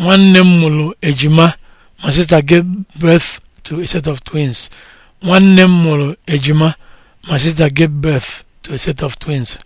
nwanne m mụrụ ejima ma sister gave birth to a set of twins nwanne m mụrụ ejima ma sister gave birth to a set of twins